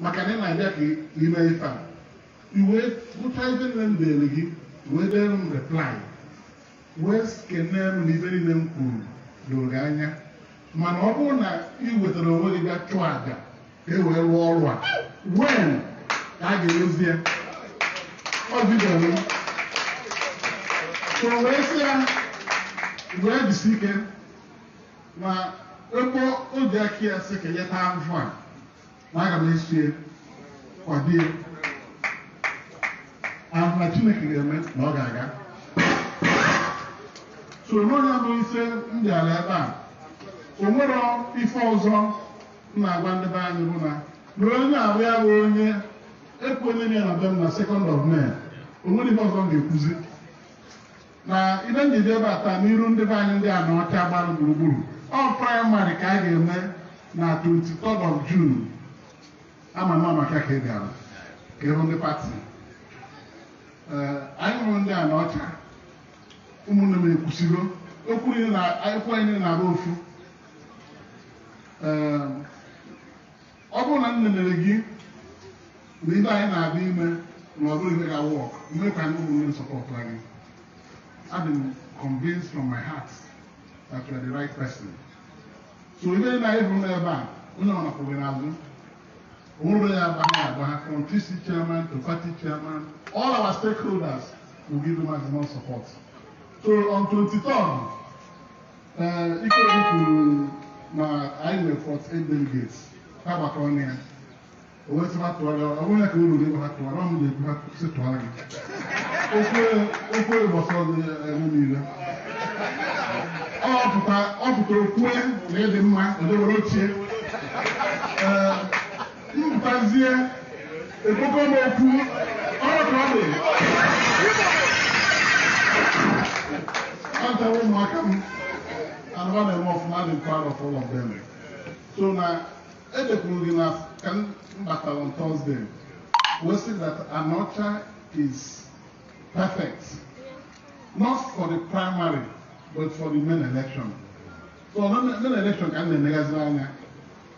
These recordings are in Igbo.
maka na ị na-abịa ka ị ime ife a iwee gụcha ibe nne m dere gị wee dere m reply wee kenee m na ibe niile m kwuru doro gị anya mana ọ bụrụ na ị wetara onwe gị bịa chụọ aja e wee rụọ ọrụ a wee ka a ga-erozi ya ọ bidoro so wee sị ya wee jisi ike ma ebe oji aka ya sị ka ya taa mfụ a na aga m esi kwadie ahụ na Chineke ga-eme na ọ ga-aga so onye bụ ise ndị ala ebe a o nwere ife ọzọ m na-agwa ndị be anyị bụ na na onye abụ bụ onye ekwu onye na na be m na second of mee onwere ibe ọzọ m ga-ekwuzi na ile njide ebe a taa n'iru ndị be anyị ndị a na ọcha gbara gburugburu ọ praịmarị ka a ga-eme na 23 of June ama m ama ka ị gara ka ịhụ ndị pati anyị hụrụ ndị a na ọcha ụmụnne m ekwusigo okwu akwụkwọ anyị na-arụ ofu ọ bụrụ na m nenere gị na ibe anyị na-abịa ime na ọ bụrụ ihe ga-awụ ọkụ mmere ka ndị ụmụnne m sọpọtara gị adị m convinced from my heart that you are the right person so ibe na ịhụrụ n'ebe a onye ọ nakpụrụ n'azụ Owurọ ya abaha from TC chairman to party chairman, all our stakeholders will give maximum support. So on 23rd, uh, Ikoyi kwuru na anyị nwere 48 delegates, ha gbakọrọ na ya. O wee sịba tụgharịa ọ bụrụ ya ka unu na-ebu ha Okay. Okay. na-ebu ha si tụgharịa gị. Okwu ụbọchị ọzọ eme niile. Ọ pụtara kwue na ịdị mma, ndị were ochie. a ekpoko m All ọrụ ka ọ dị antawa ụmụaka m anụwa na-eme ọfụma dị proud of all of them so now, edekwuru the na ka m batara on Thursday we see that Anocha is perfect not for the primary but for the main election so the main election can be negative. I anya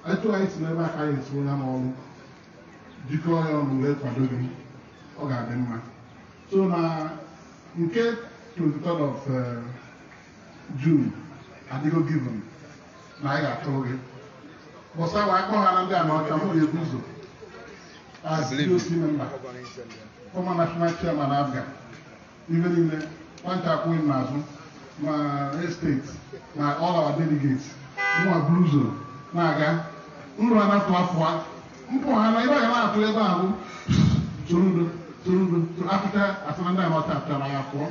atụghaghị si n'ebe aka ya esuola n'ọrụ jikọọ ya ọnụ wee kwado gị ọ ga-adị mma so na nke 23 of eh, June adịgo given na anyị ga-atụrụ gị bọsa wa akpọ ha na ndị a Amerịka m ga-ebu ụzọ as DOC member former national chairman abga ibe niile nwata akwụghị m n'azụ ma estate na ọla our delegates nwa buru ụzọ na-aga nrụanapụ afọ mpaghara ibe aga m atụ ebe ahụ torudo torudo apụta asụmanda mọta pụtara ya pụọ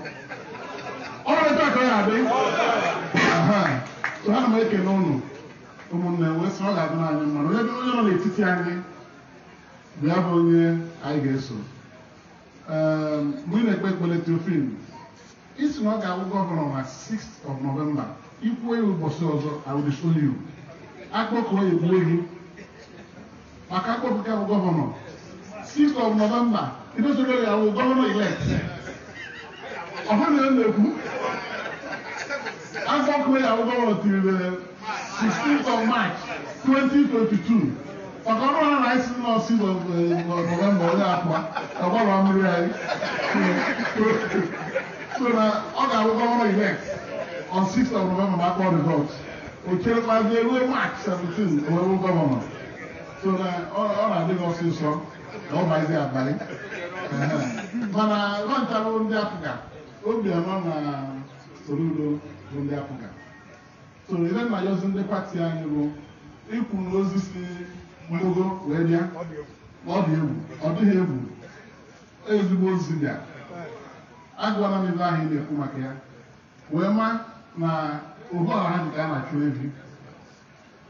ọ na-eto aka ya adị ana m ekene ụnụ ụmụnne wee sị ọ ga-adị n'anya mmanụ onye dị onye nọ n'etiti anyị bịa bụ onye anyị ga-eso ehm, mgbe ị na-ekpe ekpele trofin isi na ọ ga-abụ gọvanọ na 6 of November ikwuo ya ụbọchị ọzọ awụdịsolu akpọkụọ ya egbuo gị maka akpọpụta bụ gọvanọ 6 of November idozugoro ya bụ gọvanọ elect ọha na emegbu agbakwe ya bụ gọvanọ tirile 16 th of March 2022 maka ọrụ ha na isi nọ 6 of November onye akwa ọgbara mmiri anyị so na ọ ga-abụ gọvanọ elect on 6 th of November ma akpọ results o cherekwazie ruo March 17 o wee gọvanọ so na ọ na-adị gị ọsịsọ na ọ bazi abalị mana nwantara ndị apụga obiọma na Soludo bụ ndị apụga so ile na yozi ndị pati anyị bụ ikwu na ozi si mgbogo wee bịa ọ dị egwu ọ dịghị egwu ezigbo ozi bịa agwala m ebe ahụ ị na-ekwu maka ya wee ma na ohu ọha dị ka a na-achụ evi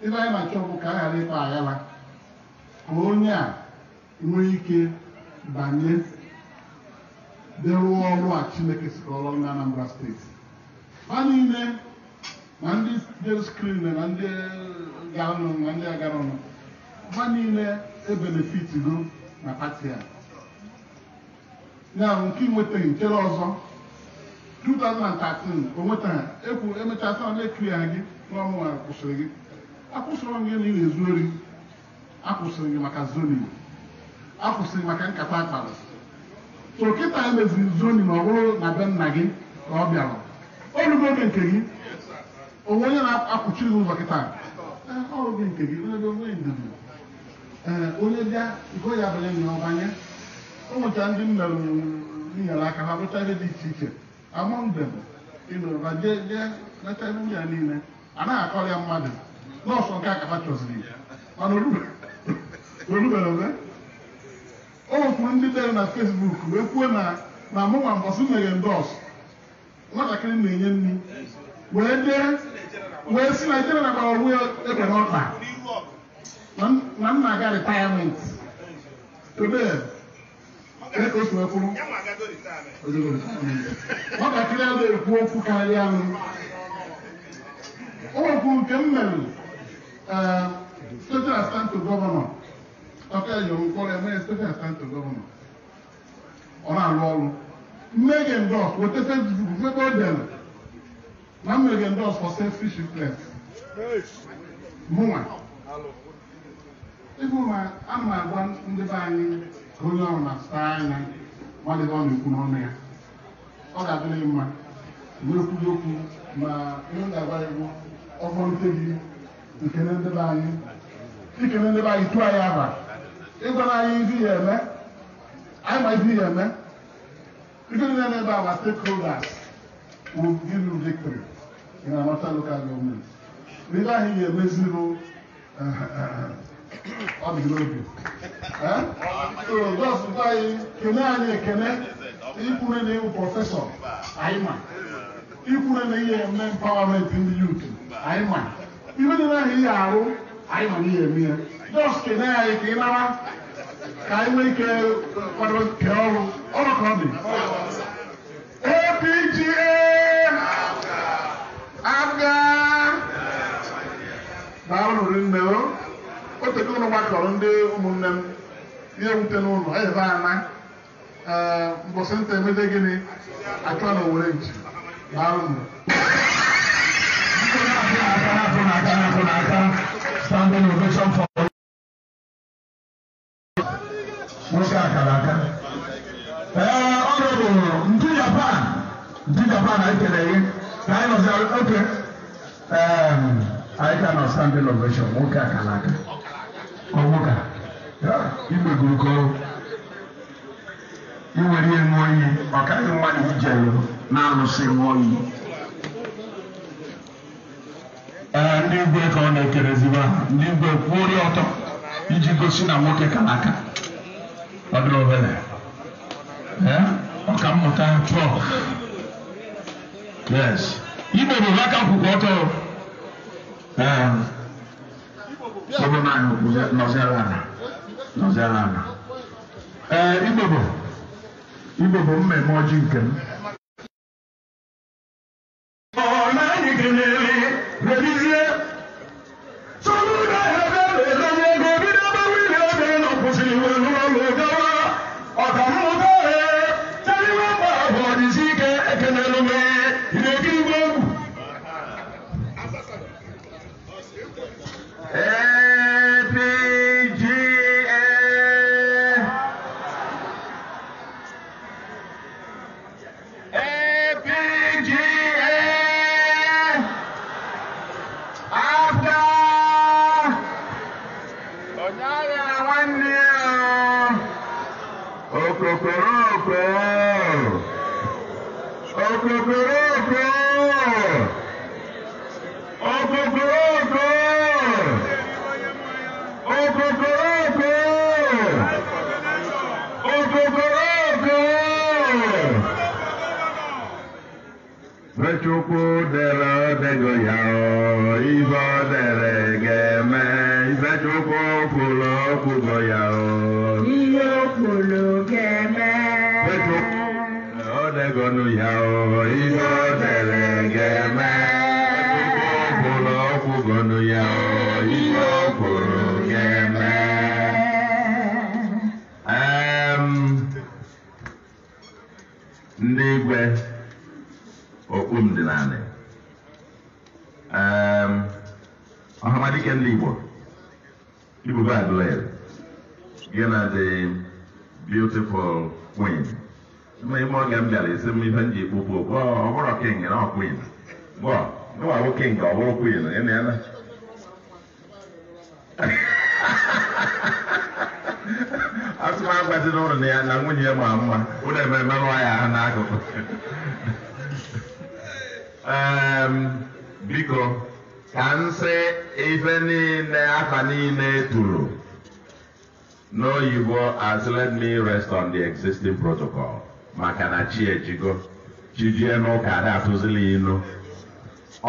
ibe anyị na-achọ bụ ka a ghara ịkpa aghara ka onye a nwee ike banye dịrụọ ọrụ a Chineke sikọrọ na Anambra steeti ha niile na ndị del skrin na ndị gaanụ na ndị agaranụ ha niile ebenefitigo na pati a ya nke nwetaghị nchere ọzọ 2013 o nweta ekwu emechaa na na-ekiri ha gị n'ọnwa kwụsịrị gị akwụsịrọ m gị na ị na-ezu ori akwụsịrị gị maka zoning akwụsịrị maka nkata akpara so kịta emeziri zoning ọ bụrụ na be nna gị ka ọ bịara orugo oge nke gị onwe onye na-akwụchiri gị ụzọ kịta oge nke gị onye bịa iko ya banye na ọbanye o nwechara ndị m nyere aka ha rụcha ihe dị iche iche amụndem ịnụrụba jee jee lecha ihe ya niile anaghị akọrọ ya mmadụ nọọsụ nke akapa chọziri ya mana orube olubere ọzọ okwu ndị dere na fesbuk wee kwuo na na mụnwa mbọsị meghe ndọs nwatakịrị na-enye nri wee dee wee si naijiria na gbara onwe egbe n'ọkpa na nna aga retirement today otu ekwuru nwatakịrị a ekwu okwu karịa m okwu nke m mere ee state assistant gọvanọ Chọka ejoro ụkọrọ eme steeti asentị gọvanọ ọ na arụ ọrụ mmege ndọs wetese ndugu ebe o na mmege ndọs for selfish influence mụnwa ịbụ ma agwa ndị anyị onye ọrụ na-asụtara anya ọ na-ekwu n'ọnụ ya ọ ga-adịrị mma mgbe ekwughị okwu ma ihe ga-agba egwu ọgbọ nte gị anyị ikele ya abalị ịgwa na anyị izi ya eme anyị ma izi ya eme ndị niile na-ebe our stakeholders will give you victory in Anambra local government ndị anyị ga-emeziru eh, eh, eh, ọ dị n'obi so just gwa anyị kene anyị ekene ikwure na ịwụ prọfesọ anyị ma ikwure na ihe eme empowerment ndị youth anyị ma ibe dị na ihe arụ anyị ma na ihe eme ya dọstụ na-anyị ka ị mara ka anyị nwee ike kwadoro nke ọrụ ọrụ ka ọ dị APGA aga daalụrụ nne o otego ụlọ gbakọrọ ndị ụmụnne m ihe wute n'ụlọ ebe ana e, mbọsị nta emede gịnị achọ na owere nchi daalụrụ Standing ovation for Eh, bụ ndị japan ndị japan anyị kelere gị ka anyị oke anyị nọ nwoke ka kọrọ iwere ihe ṅụọ ọkaghị nwa na-alụsị ee eh, ndị igwe ka ọ na-ekerezigba ndị igwe kwuo ọtọ iji gosi na nwoke kalaka. aka ọdụrụ obere ọka mmụta trọk yes igbo bụ aka kwụkwọ ọtọ ọbụ naanị nọziara ala nọziara ala ee igbo bụ mmemme ọjị nke m mẹ ìfẹ́jọ́kọ fòlọ́ kò gbọ̀yà ọ́. iye òkòlò kẹmẹ. fẹ́jọ́ yà ọ́ iye. ngeen libor igbo go and learn ngeen are the beautiful queen ma ime oge m bịara isi m ife m ji kpụpụ ọ bụrụ king na ọ queen gwa gwa bụ king ọ bụrụ queen ị na-ele asị m agbazi n'ụlọ na ya na nwunye ya ma mma ụlọ ememe nwa ya ha n'akụkụ biko ka nsị ife niile afa niile e tụrụ n'oyibo as let me rest on the existing protocol maka na chi ejigo chijie n'ụka ada atụzila inu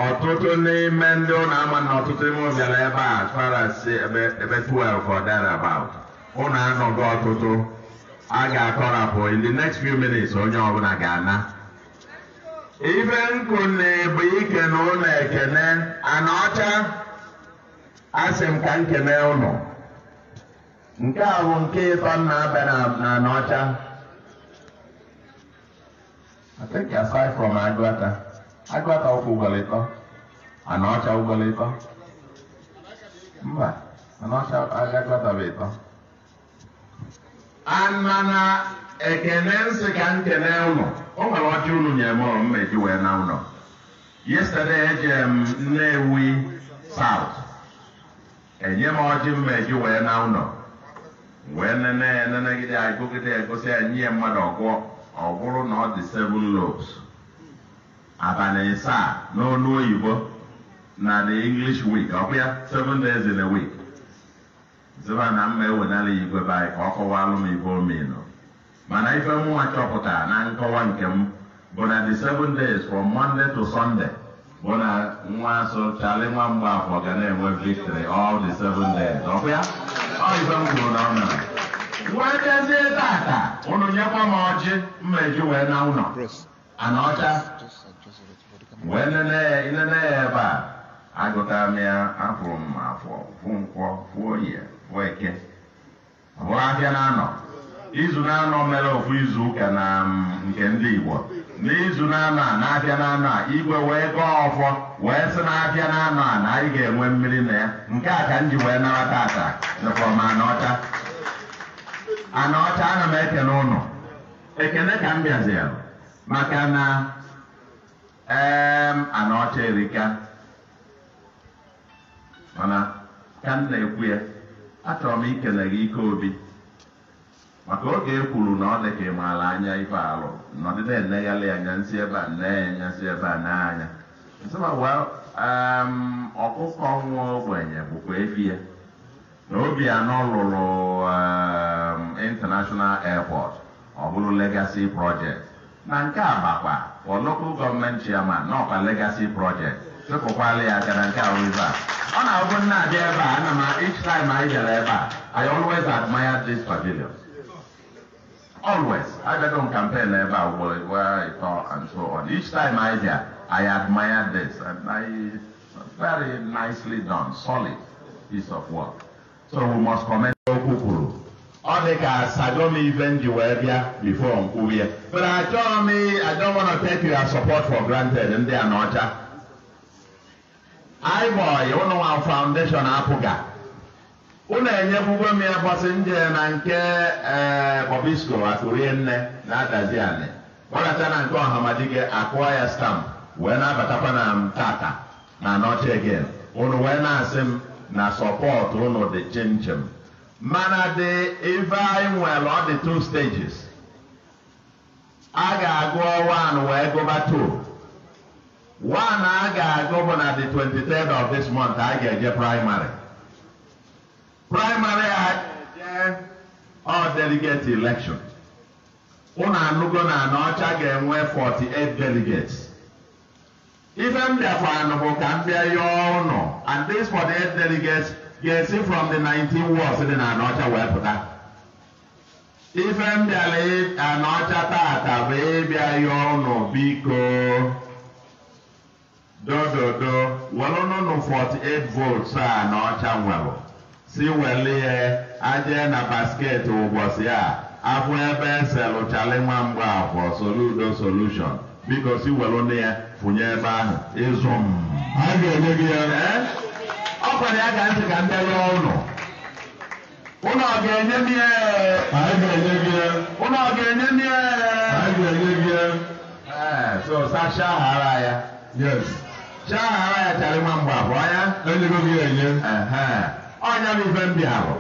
ọtụtụ n'ime ndị ụlọ ama na ọtụtụ ime bịara ebe a farasi ebe 12 or thereabout ụlọ anọgo ọtụtụ a ga-akọrapụ in the next few minutes onye ọbụla ga-ana ibe nkụ na bụ ike na ụlọ ekene ana ọcha asị m ka nkene ụlọ nke a bụ nke ịtọ na abịa na anọcha I think aside from Agwata, Agwata ọkwụ ụgbọrọ ịtọ anọcha ụgbọrọ ịtọ mba anọcha agwata bụ ịtọ mana ekene nsị ka m kene ụlọ o nwere ọcha unu nyere m ọrụ mma eji wee na ụlọ yesterday ejere m ewi South enye m ọjị mma eji wee na ụlọ wee nene enenegide agụgide egosi enyi ya mmadụ ọgwụọ ọ bụrụ na ọ dị seven lobes abalị ịsaa n'ọnụ oyibo na the English week ọ bụ ya seven days in a week ziba na mma ewenala ya igwe be anyị ka ọ kọwalụ m ibe omenu mana ife mụnwa chọpụta na nkọwa nke m bụ na the seven days from monday to sunday bụ na nwa so chali nwa mgbe afọ ga na-enwe victory all the seven days ọkụ ya ọ ife m kwuru na ọ mere nwetezie tata ụnụ nyekwa m ọjị mmeji wee na ụnọ. ana ọcha wee nene ya inene ya ebe a agụtara m ya afụrụ m afọ fụ nkwọ fụo oyi fụo eke bụ ahịa na anọ izu na-anọ mere ofu izu na nke ndị Igbo n'izu na-anọ a na-abịa na-anọ a igwe wee gọọ ọfọ wee sị na-abịa na-anọ a na anyị ga-enwe mmiri na ya nke a ka m ji wee nara tata dịkwa m anaọcha anaọcha ana m eke ụnụ ekene ka m bịaziri maka na ee anaọcha erika mana ka m na-ekwu ya achọrọ m ikele gị ike obi maka oge e kwuru na ọ dị ka ị maara anya ife alụ nọdụ na-enegharị anya nsị ebe a nne anya nsị ebe a n'anya ọkụkọ nwa ogbenye bụkwa efi ya na Obianọ lụrụ international airport ọ bụrụ legacy project na nke a bakwa for local gọọmenti chairman n'ọkwa legacy project chụpụkwala ya gara nke a rive ọ na-abụ nna abịa ebe a ana m each time anyị bịara ebe a I always admire this pavilion always agago on campaign ebe a ugboro where i all and so on each time i hear i admire this and i very nicely done solid piece of work so we must commend okwu kwuru ọ dị ka sadom ife m wee bịa before nkwubi ya but m i don't want to take your support for granted ndị a n'ọcha iboy ụnụ foundation Apuga. ụlọ enyekwugo m ya gbasị nje na nke ee eh, bọbisko akụrie nne na-adazi anị gbaracha na nke ọhamadike akụọ ya stampụ wee na-abatakwa na m tata na nọchi again unu wee na-asị m na sọpọtụ ụnụ dị chinchin mana dị ife anyị nwere ọ dị two stages a ga-agụ one wee gụba two one a ga-agụ bụ na the 23rd of this month a ga-eje primary praịmarị a jee ọ delegate election ụnụ anụgo na na ọcha ga-enwe 48 delegates ife m bịakwanụ bụ ka m bịa yọọ ụnụ and these 48 delegates ga-esi from the 19 wards dị na Anọcha wee pụta ife m bịara Anọcha tata bụ ịbịa yọọ ụnụ biko dododo welụnụnụ 48 volts a Anọcha nwere si welie aje na basket ụbọchị a afụ ebe eselụchali nwa afọ soludo solushon biko si welu nne ya funye ebe ahụ ịzụ m a ga-enye gị ya ọ kwere ya ga ntị ka m bịa ya ụlọ ọ ga-enye m ya ụlọ ọ ga-enye m ihe. ee so sacha hara ya yes chahara ya chara nwa afọ ya enyego gị enye onye bụ ife ahụ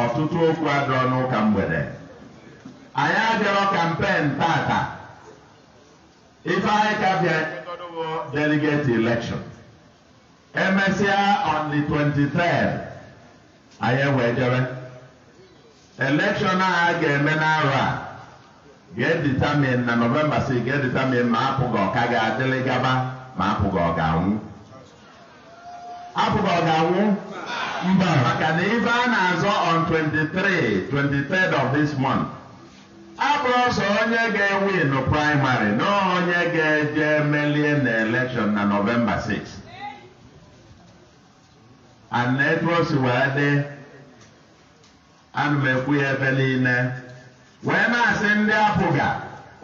ọtụtụ okwu adọ n'ụka mgbede anyị abịarọ kampen tata ife anyị ka bịa delegate election emesịa on the 23 anyị ewee jebe election a ga-eme n'arụ a ga-editamin na nọvemba 6 ga-editamin ma apụghị ọka ga-adịlị gaba ma apụghị ọ ga-anwụ abụba ọ ga-anwụ mba maka na ife a na-azọ on 23 23 of this month abụrụ ọsọ onye ga-ewin praịmarị na onye ga-eje melie na na Novemba 6 and etu wee dị ana m ekwu ya ebe niile wee na-asị ndị apụga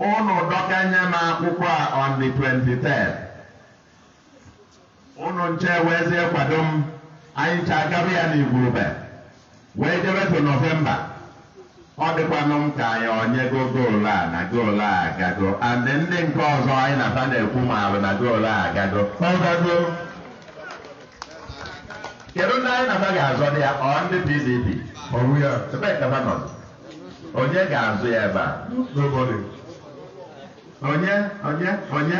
ụnụ dọkanye m akwụkwọ a on the 23 ụnụ nche weezie kwado m anyị ncha agaba ya n'igwurube wee jebetu novemba ọ dịkwanụ m ka anyị onye go goolu a na goolu a agago and ndị nke ọzọ anyị na aba na-ekwu ma arụ na goolu a agago ọgago kedu ndị anyị na-aba ga-azọ dị ya ọ ndị pdp ya ebe onye ga-azụ ya ebe a onye onye onye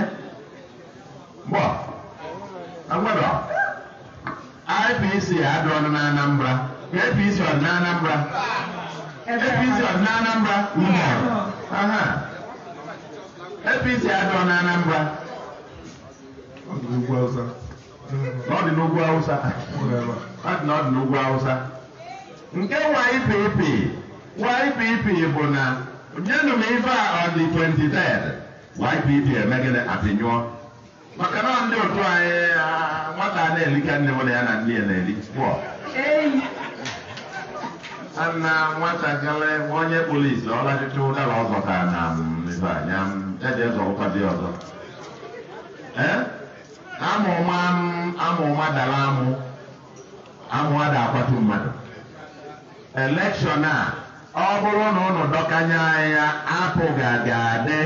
gbọ agbado IPC adọọla na Anambra APC ọ na Anambra APC ọ dị na Anambra aha APC adọọ na Anambra ọ n'ugwu Awụsa nke YPP YPP bụ na nyenụ m ife a ọ dị 23 YPP emegide apịnyụọ maka na ndị otu anyị nwata na-eli ka nne m ya na ndị ya na-eli na nwatakịrị onye polisi ọlachịcha ụdara ọzọ ka na ibe anya eji ezo ụkwadị ọzọ e? amụma amụma dara amụ amụ ada akwatu mmadụ elekshọn a ọ bụrụ na ụnụ dọkanye anya apụ ga-adị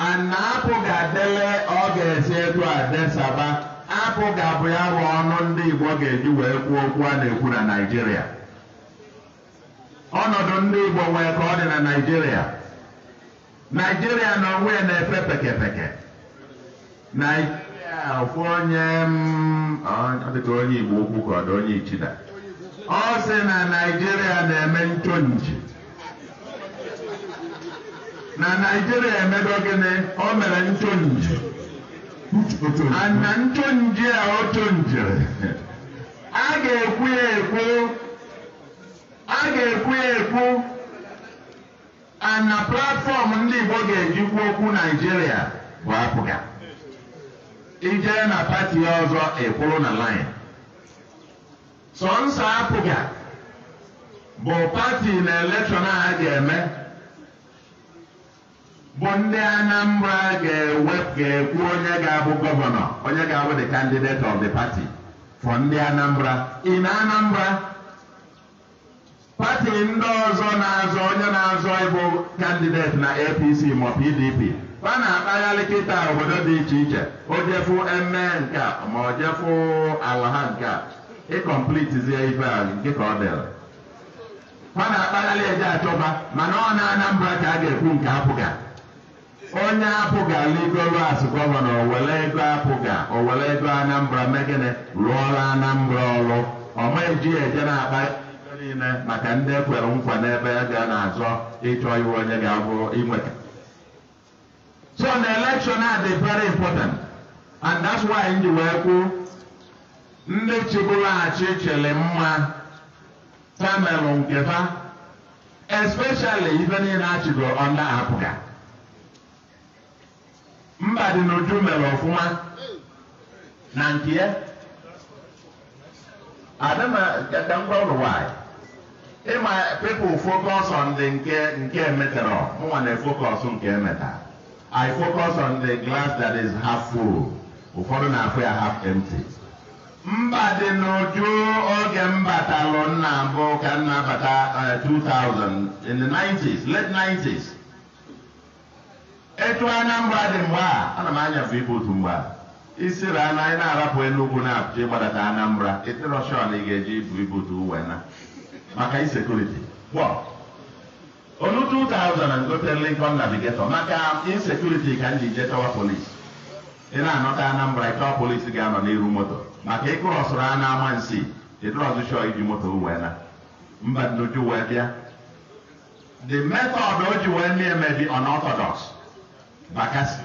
ana apụ ga-adele ọ ga-esi egwu adesaba apụ ga-abụ ya bụ ọnụ ndị Igbo ga-eji wee kwuo okwu a na-ekwu na Naijiria. ọnọdụ ndị Igbo nwee ka ọ dị na Naijiria. Naijiria na onwe na-efe pekepeke Naịjirịa ofu onye mm, dịka onye Igbo okwu ka ọ dị onye Ichida ọ sị na Naijiria na-eme nchonji na Naịjirịa emedo gịnị o mere ntonje na ntonje a o tonjere a ga-ekwu ya ekwu a ga-ekwu ya ekwu ana platfọm ndị Igbo ga ejikwu okwu Naijiria bụ apụga ijee na pati ọzọ ekwuru na lin sọnsọ apụga bụ pati na elekshọn a ga-eme bụ ndị Anambra ga-ekwu onye ga-abụ gọvanọ onye ga-abụ the candidate of the party for ndị Anambra na Anambra pati ndị ọzọ na-azọ onye na-azọ ịbụ kandideti na APC ma PDP e a na-akpagharị kịta obodo dị iche iche ojefu eme nke a ma ojefu ala ha nke a ịkọmplitizie ife a nke ka ọ dịrị a na-akpagharị eje achọba mana ọ na Anambra ka a ga-ekwu nke apụga onye apụga ligoro gọvanọ owele ego apụga owele ego anambra megịnị rụọla anambra ọrụ ọma eji eje na-akpa niile maka ndị ekwere nkwa n'ebe ga na-azọ ịchọ iwe onye ga-abụ inweta so na election dị very important and that's why m wee kwuo ndị chịbụrụ achị chịrị mma channel nke fa especially ife niile achịgo ọnda apụga mba dị n'uju mere ọfụma na nke ya adịna ka ngwa ụlọ nwanyị ịma pepụl fokọs on nke nke emetara mụnwa na fokọs nke emeta i focus on the glass that is half full ụfọdụ na-afụ ya half empty mba dị n'uju oge m batalụ nna mbụ ka nna bata 2000 in the 90s late 90s etu Anambra dị mgbe a ana m anyafe ibe otu mgbe a isiri ana anyị na-arapụ enugwu na-apụcha ịgbadata Anambra eterọshọn ị ga-eji ibu ibu otu uwe na maka insekuriti onu 2000 gote Lincoln Navigator maka insecurity ka m ji je chọwa polisi ị na-anọta Anambra ịchọwa polisi ga-anọ n'iru moto maka ịkụrọsụrụ a na-ama nsi eterọzụchọ iji moto wena na mba nnuju wee bịa the method o ji wee na-emebi unorthodox bakasị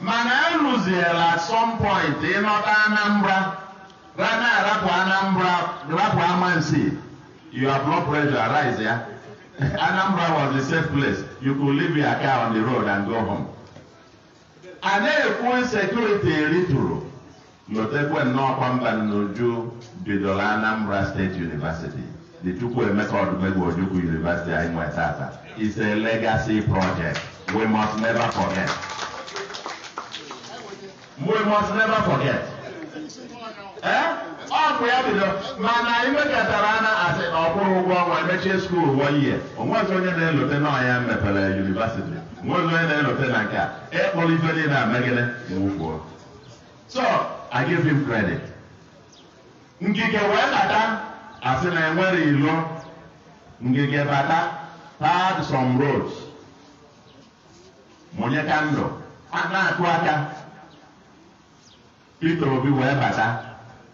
mana e some point ịnọta Anambra rana arapụ Anambra rapụ amansi your blood pressure arise ya Anambra was the safe place you could leave your car on the road and go home a na-ekwu sekuriti eritụrụ lotekwe nnọọ kwamba n'uju bidoro Anambra State University the emeka Odumegwu Ojukwu University anyị nwe tata is a legacy project We must never forget. We must never forget. Ee, eh? ọ bụ ya bido mana anyị nwekọtara ana asị na ọkwụrụ ụgwọ ọnwa mechie skuul ihe year onwezi onye na-elote n'ọhịa mepere yunivasiti onwezi onye na-elote na nke a ịkpọrọ ife niile na amegide wufuo so I give him credit ngige wee bata asị na enwere ilo ngige bata pad some roads Mụnye ndụ a na-akụ aka Peter Obi wee bata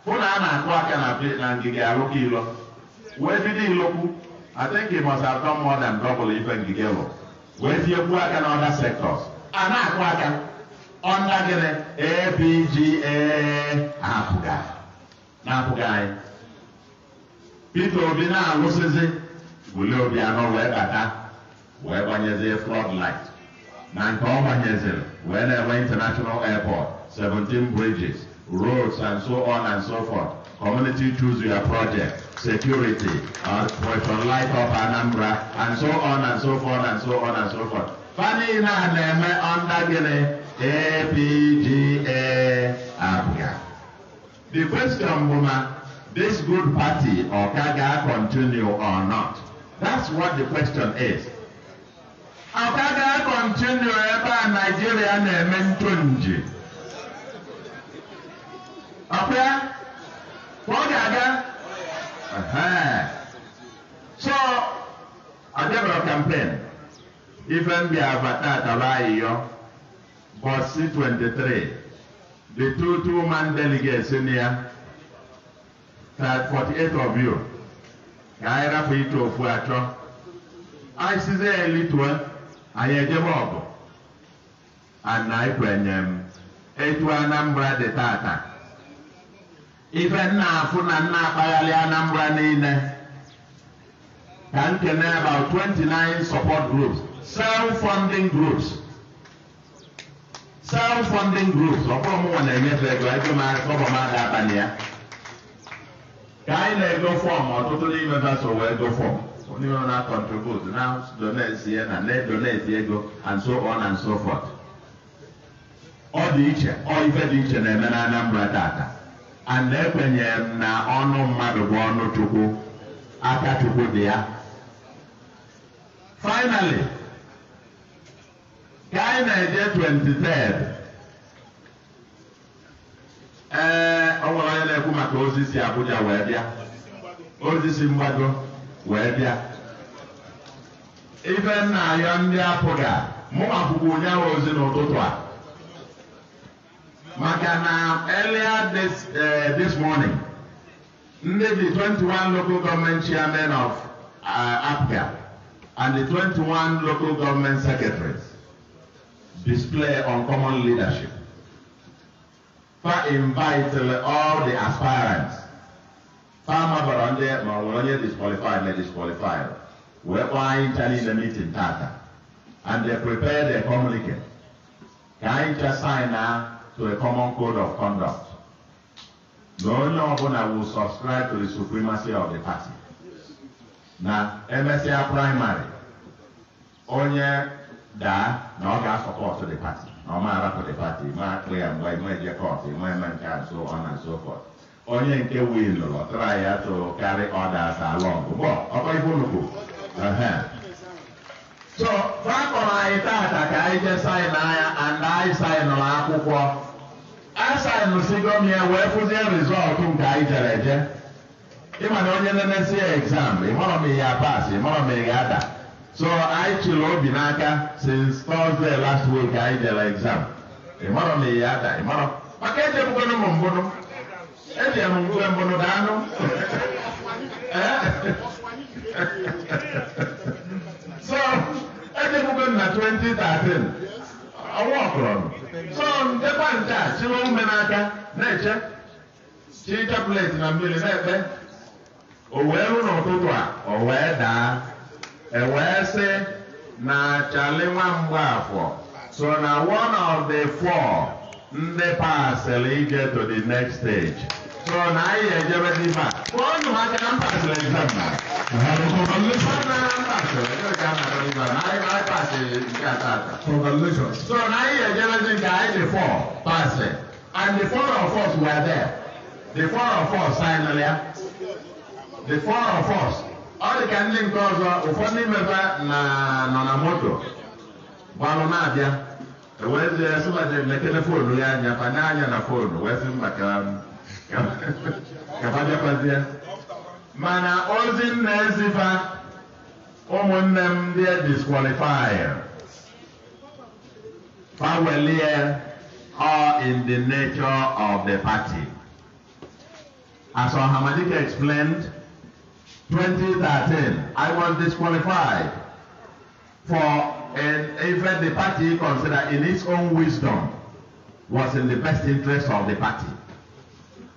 hụ na a na-akụ aka na ngige arụkọ ilo wee bido ilokwu atịnki mọs atọ mmụọ na ndọbụl ife ngige lụ wee tinyekwu aka na ọda sektọs a na-akụ aka ọnda gịnị APGA apụga na-apụga anyị Peter Obi na-alụsịzi wule obi anọ wee bata wee gbanyezi floodlight na nke ọ banyeziri wee na-enwe international airport 17 bridges roads and so on and so forth community choose your project security uh, question light up Anambra and so on and so forth and so on and so forth fani na na-eme under gịnị APGA Abia the question bụ na this good party ọ ka ga-continue or not that's what the question is Aba ga-akọntinu ebe a Naịjirịa na-eme ntonji. Ọkwa ya? Ọ ga-aga? So, abịabara kampen ife mbịa abata ataba ayịyọ bọsi 23 the two two man delegates in ya 48 of you ka anyị rapụ ite ofu achọ isis sizie elituo anyị ejebe ọgụ anaekwenye m um, etu Anambra dị tata ife nna afụ na nna akpaghalị Anambra niile ka na about 29 support groups self-funding groups self-funding groups ọkpọrọ mụnwa na-enyefe ego egọbọ m ga abalị ya ka anyị na-ego fọm ọtụtụ n'ime vaso wee go fọm Onye nọ na contribute na donezie na na-edoneti ego and so on and so forth ọ dị iche ọ ife dị iche na-eme na Anambra tata and ekwenyere m na ọnụ mmadụ bụ ọnụ Chukwu aka Chukwu dị ya finally ka anyị na-eje 23 ee ọ nwere onye na-ekwu maka ozi si Abuja wee bịa ozi si mgbado wee bịa ife nna ya ndị apụga mụ akwụkwọ ụnyaahụ ozi n'ụtụtụ a maka na earlier this, uh, this morning ndị the 21 local government chairmen of uh, eh, APGA and the 21 local government secretaries display uncommon leadership. For invite all the aspirants fama bara ndị ma onye disqualified na disqualified wee kpọọ anyị ncha niile meeting taata and they prepare the communicate ka anyị ncha sign na to a common code of conduct na onye ọbụla will subscribe to the supremacy of the party na emesịa primary onye daa na ọ ga-asọpọtụ the party na ọ ma arapụ the party ma akpụ ya mgbe ịma eje kọt eme nke a so on and so forth onye nke tụrụ wil lụrụ try ya to carry others along so fakọrọ anyị tata ka anyị jee saịn anya and anyị saịnụrụ akwụkwọ m ya wee fụzie rizọtụ nke anyị jere eje ịma na onye nenesi ya exam ịmọrọ m ihe ya pas ịmọrọ m ihe ada so anyị chịrị obi n'aka since Thursday last week anyị jere exam ịmọrọ m ihe ada ịmọrọ maka ejebugoro m mbụnụ ebịara m mgbe mbụ na anụ so ejekwugo na 2013 ọnwa ọkụrọ so ndekwa nke a chịwa ume n'aka na-eche chi chaplet na mmiri na-ekpe o wee rụ n'ụtụtụ a o wee daa e wee sị na chali nwa mgbaafọ so na one of the four ndị pasịrị ije to the next stage So na yi ya jaba di ba. Wani ma ka an pass la exam na. Congratulations. Na an pass la exam na di ba. Na yi ma pass ka ta ta. Congratulations. So na yi ya jaba di ka I the four pass it. And the four of us were there. The four of us signed earlier. The four of us. All the candidate ọzọ ụfọdụ n'ime ha na nọ na moto. Gbalụ na-abịa. wee sịmaje mekele foonu ya anya banye anya na foonu wee sị mba kababịakwazie mana ozi m na-ezifa ụmụnne m ndị disqualify fawelie or in the nature of the party. As Hamadika explained, 2013, I was disqualified for And even the party considered in its own wisdom was in the best interest of the party.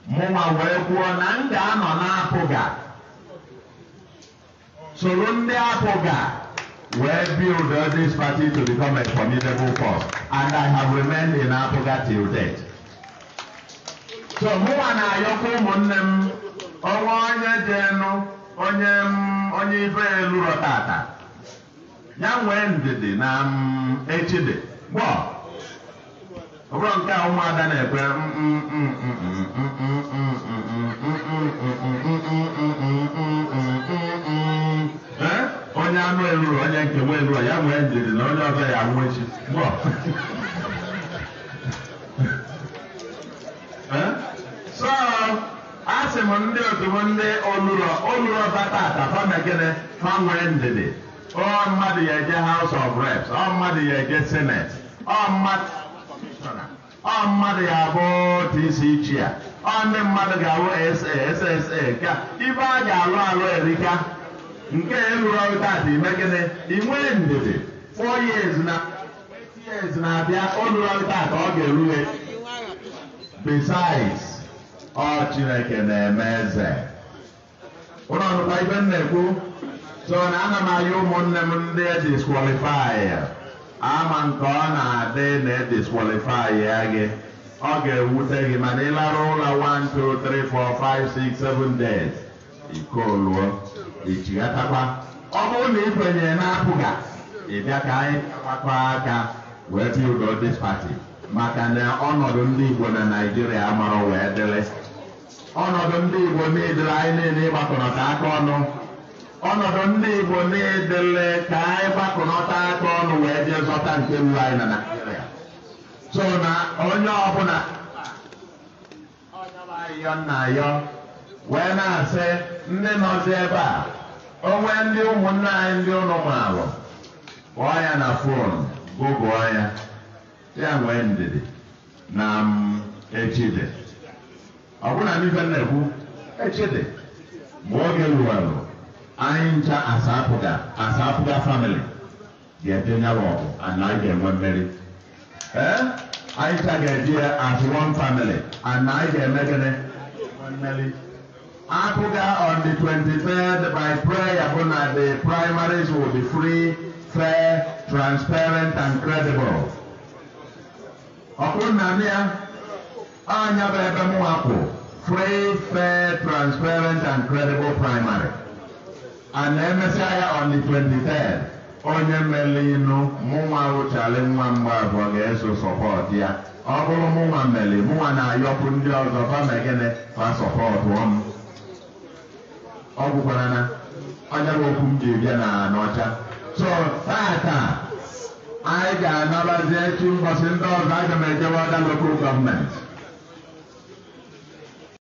Mụnwa wee kwuo na m ga-anọ n'apụga soro ndị apụga wee build this party to become a formidable force and I have remained in apụga till date. So mụnwa na-ayọkwa ụmụnne m ọnwa onye jenụ onye m onye ife elu rọtata. ya nwee ndidi na echide gbọ gboo, nke a ụmụada na-ekwe onye anụ eruru onye nke nwe eruru ya nwee ndidi na onye ọzọ ya nwee echi gbọ so asị m ndị otu m ndị fa ọ mmadụ ya eje House of Reps ọ mmadụ ya eje Senate ọ mmadụ ya abụ TC Chair ọ ndị mmadụ ga-alụ SA SSA ka ibe a ga-alụ alụ erika nke ọrụ eruru ọrụtata imegide inwee ndidi 4 years na 8 years na-abịa olurọrụtata ọ ga-erughe besides ọ Chineke na-eme eze ụlọ ọnụkwa ibe m na-ekwu so na ana m anya ụmụnne m ndị ediskwalifai ya ama nke ọ na-adị na ediskwalifai ya gị ọ ga-ewute gị mana ịlarụ ụlọ 1 2 3 4 5 6 7 days ikoluo ichighatakwa ọ bụrụ na ikwenye na-apụga ịbịa ka anyị agbakọ aka wee bịa pati maka na ọnọdụ ndị Igbo na Naijiria amarọ wee dịrị ọnọdụ ndị Igbo niile anyị niile ịgbakọrọta aka ọnụ ọnọdụ ndị Igbo na-edele ka anyị gbakọnọta aka ọnụ wee jee zọta nke mbụ anyị na Naịjirịa so na onye ọbụla ọnyabahịyọ nna yọ wee na-asị ndị nọzi ebe a onwe ndị ụmụnne anyị ndị ụlọ maalụ kpọọ ya na fon gụgụọ ya ya nwee ndidi na echide ọ bụla n'ife na-ekwu echide mgbe oge ruwelụ anyịncha asapụga asapụga family ga-edenye ọgụ ana anyị ga-enwe mmeri ee eh? ncha ga-eji as one family ana anyị ga-eme gịnị mmeri akụga on the 23rd by prayer bụ na the primaries will be free fair transparent and credible Okunna nna ya anya bụ ebe m wakwu free fair transparent and credible primary a na-emesịa ya on onye mere ịnụ mụnwa wụchara nwa mgbe abụọ ga-eso sọpọt ya ọ bụrụ mụnwa mere mụnwa na-ayọpụ ndị ọzọ bamegene ma sọpọtụ ọnụ. ọ gwụkwara na onye okwu m ji bịa na n'ọcha so tata anyị ga anabazi echi mbọsị ndị ọzọ aga m ejewe ọda gọọmenti